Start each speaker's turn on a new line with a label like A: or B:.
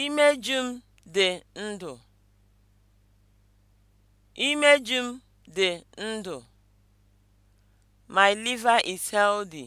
A: Imeju m dị ndụ. Imeju m dị ndụ. My liver is healthy.